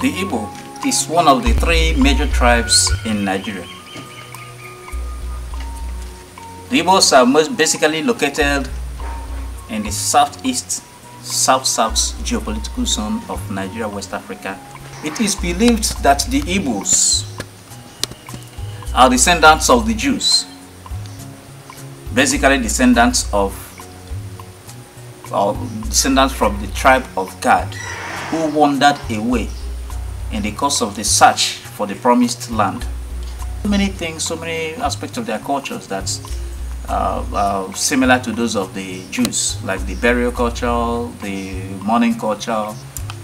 The Igbo is one of the three major tribes in Nigeria. The Igbos are most basically located in the southeast, south-south geopolitical zone of Nigeria, West Africa. It is believed that the Igbos are descendants of the Jews, basically descendants of or descendants from the tribe of Gad who wandered away in the course of the search for the promised land. So many things, so many aspects of their cultures that uh, uh, similar to those of the Jews, like the burial culture, the mourning culture.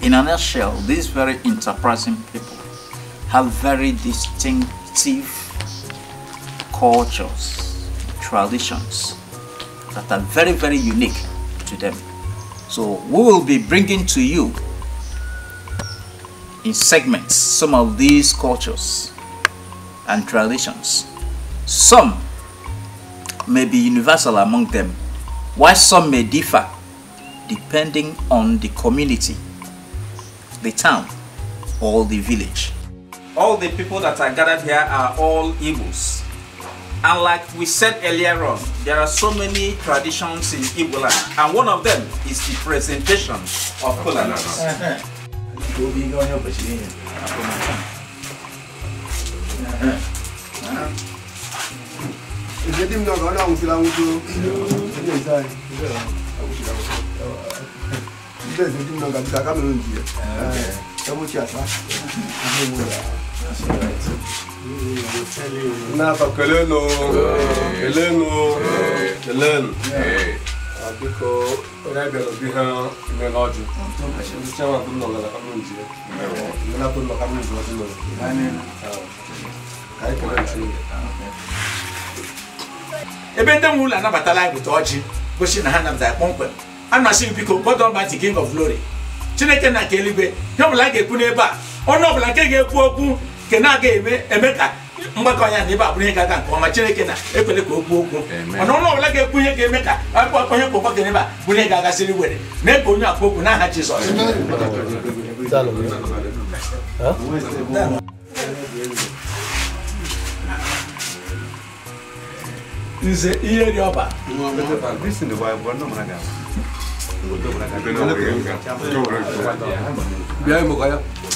In a nutshell, these very enterprising people have very distinctive cultures, traditions that are very, very unique to them. So we will be bringing to you in segments some of these cultures and traditions. Some may be universal among them, while some may differ depending on the community, the town, or the village. All the people that are gathered here are all Igbos. And like we said earlier on, there are so many traditions in Igbo land, and one of them is the presentation of kola Gobi go help us in. Jadi mengapa kau nak usul aku tu? Ini saya. Aku usul aku. Ini saya jadi mengapa kita kami lunci. Kamu siapa? Kamu mula. Napa kelenu? Kelenu. Kelenu. Ah, biko onye bịara obi ha chiama ka m ka m ji ọjụ ka anyị kere ebe ndị nwe ụlọ anabatala anyị bụta ọjị gosi na ha nabatara kpọmkwem a na-asị m biko God Almighty King of Glory Chineke na nke eluigwe ihe ọbụla a ga-ekwu n'ebe a ọnụ ọbụla nke ga-ekwu okwu nke na-aga eme ka mgbakọ ya na ebe abụrụ ihe ga-aga nke ọma chineke na-ekwele ka okwu okwu mana ọnụ ọbụla ga-ekwu ihe ga-eme ka akpụkpọ onye kpọkọ gị n'ebe a bụrụ ihe ga-agasịrị were mee ka onye akpa okwu n'aha jizọs nze ihe dị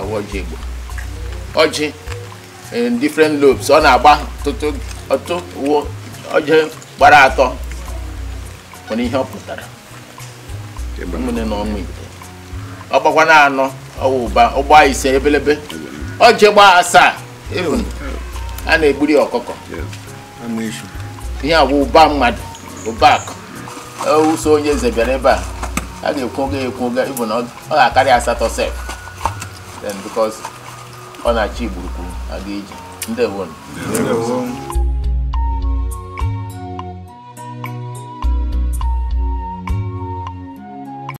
ọwa ọjị igbo ọjị different lobes ọ na-agba ọtụtụ uwe ọjị gbara atọ nwere ihe ọ pụtara ụmụnne na ọmụ ite ọ gbakwa na anọ ọwa ụba ọgba ise ebelebe ọjị gbaa asaa a na-egburi ọkụkọ ihe agwa ụba mmadụ ụba akụ ụso onye eze bịara ebe a a ga-ekwoga ekwoga ịbụ na ọ ga-akarị asatọ sef then because ọ na-achị igburukwu ga eji ndewo